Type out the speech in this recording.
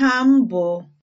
ha m bụ